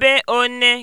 ebe one